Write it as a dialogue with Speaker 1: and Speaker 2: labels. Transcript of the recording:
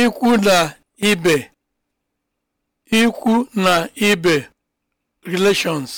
Speaker 1: ikwu na ibe ikwu na ibe relations